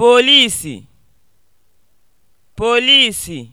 polisi polisi